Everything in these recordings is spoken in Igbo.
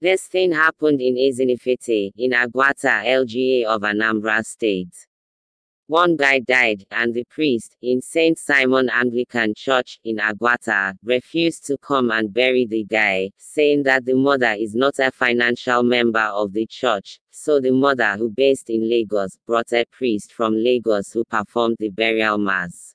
This thing happened in Ezinifete, in Aguata, LGA of Anambra State. One guy died, and the priest, in St. Simon Anglican Church, in Aguata, refused to come and bury the guy, saying that the mother is not a financial member of the church. So the mother, who based in Lagos, brought a priest from Lagos who performed the burial mass.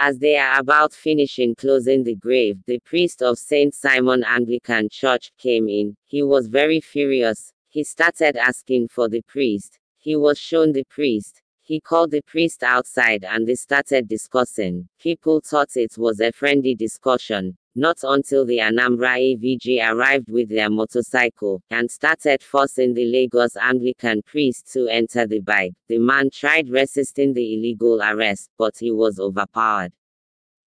As they are about finishing closing the grave, the priest of St. Simon Anglican Church came in. He was very furious. He started asking for the priest. He was shown the priest. He called the priest outside and they started discussing. People thought it was a friendly discussion. Not until the Anambra AVG arrived with their motorcycle, and started forcing the Lagos Anglican priest to enter the bike, the man tried resisting the illegal arrest, but he was overpowered.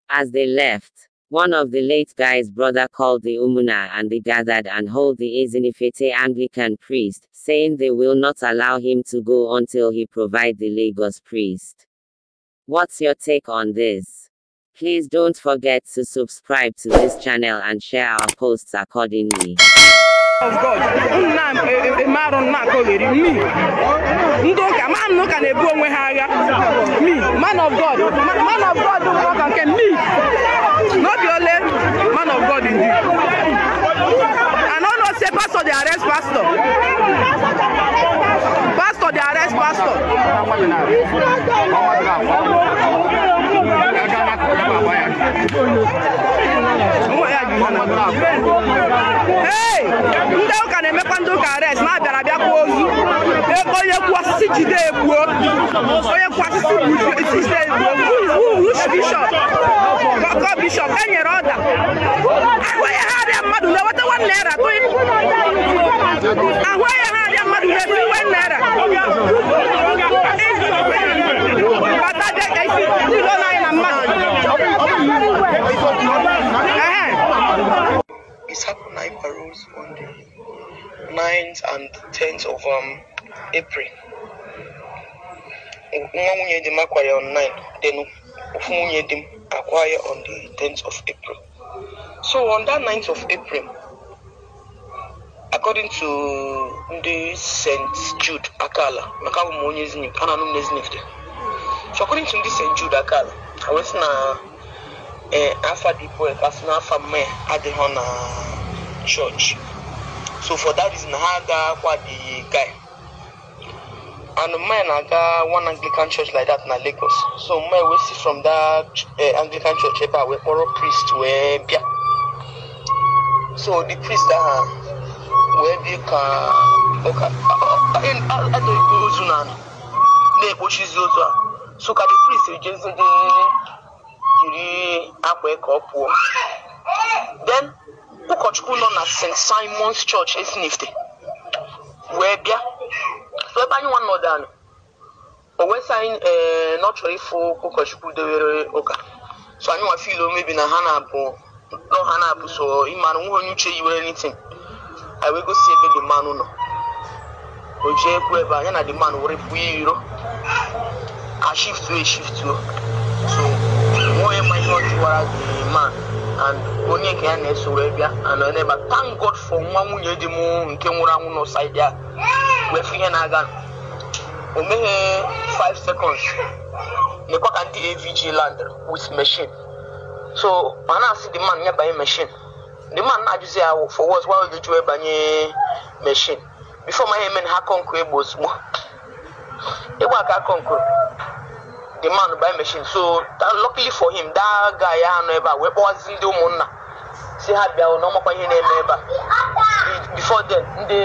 As they left, one of the late guy's brother called the Umuna and they gathered and hold the Ezinifete Anglican priest, saying they will not allow him to go until he provide the Lagos priest. What's your take on this? Please don't forget to subscribe to this channel and share our posts accordingly. Of God, nna m marụ nna ka o ghere mi ndị ụka ma m n'ụka na-ebu onwe ha agha mi man of God man of God bụ ọka nke mi n'obi ole man of God indeed. and all those say pastor the arrest pastor pastor the arrest pastor. ndị ụka na-emekwa ndị ụka arest ma abịara bịa kwuo ozu onye kwuo osisi jide egbuo onye kwuo osisi jide egbuo wush bishọp gọ bishọp e ọda e ahụ ha arịa mmadụ na-eweta nwanne naira tụị ahụ ha arịa mmadụ na-eweta nwanne naira bata bịa nine paroles on the ninth and tenth of um, April. Nwa nwunye di m akwara on 9 then ofu nwunye di m akwara on the tenth of April. So on that ninth of April, according to ndị St. Jude Akala, maka abụ m onye Zenith, a na-anụ m na dị. So according to ndị St. Jude Akala, ha wee na ee afa dị bụ na n'afa mmanya adịghị na church so for that reason ha aga kwa the guy and mine aga one anglican church like that na lagos so my wey see from that uh, anglican church ebe a wey priest we bịa so the priest aha wee bi ka ụka adịghị ozu na na-ekpochizi ozu a so ka the priest ejezi ndị jiri akwa ka ọ pụọ then ụkọchukwu nọ na st simons church esinifte wee bịa ebe anyị nwa nọdụ anụ o wee sị anyị ee na ọ ịfụ ụkọchukwu dewere ụka so anyị nwa fiil omebi na ha na-abụ nọ ha na-abụ so ịmara nwa onye uche yiwere nitin anyị wee gosi ebe dị mmanụ nọ o ji ekwu ebe anyị na dị mmanụ were pụọ iro ka shiftuo eshiftuo so nwa onye ma ihe ọ jụwara dị man and onye nke ya na-eso wee bịa anọ n'ebe thank God for nwa nwunye di m nke nwụrụ anwụ n'ụsaidi a wefu ihe na-aga o meghe 5 seconds nekwa ka ndị avg land with machine so mana na-asị the man nye banye machine the man na-ajụzi ya for words why you jụọ banye machine before my hemen ha egbo ozugbo ịgba aka kọnkụ the man buy machine so that, luckily for him that guy ya anọ ebe a wee kpọwazi ndị ụmụnna si ha bịa na ọmakwa ihe na-eme ebe a before then ndị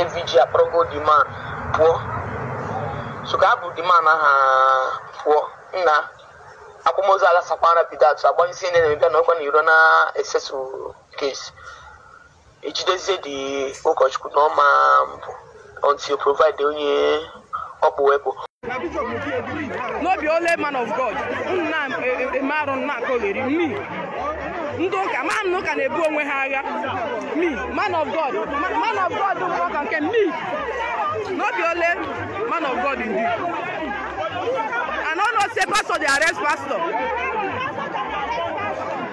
avg akpọrọgo the man pụọ so ka ha bụ the man aha pụọ nna akwamozu ala sakwa rapid atụ agbanyesi ndị na-emebịa na ọkwa na iro na esesu case ejidezie the ụkọchukwu na ọma mbụ until provide onye ọkpụ wepụ no be only man of god nna eme eh, eh, eh, arụ nna akọgheri me ndị ụka ma na ụka na-ebu onwe ha agha me man of god man of god bụ ọka nke me no be man of god ndị and all know say pastor dey pastọ.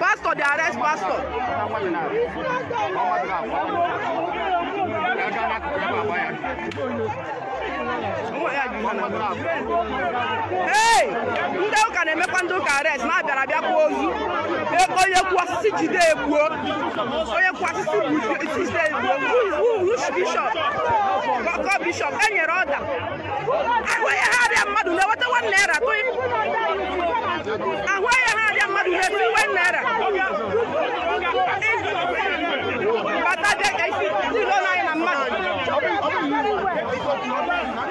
pastor pastor dey arrest pastor ee ndị ụka na-emekwa ndị ụka arest ma abịara abịa kwuo ozu onye kwuo osisi jide egbuo onye kwuo osisi jide egbuo rush bishọp gọgọ bishọp e nyere ọda ahụ onye ha arịa mmadụ na-eweta nwa naira ahụ onye ha arịa mmadụ na-eweta nwa naira ọ̀dọ́ ìrìnàjò.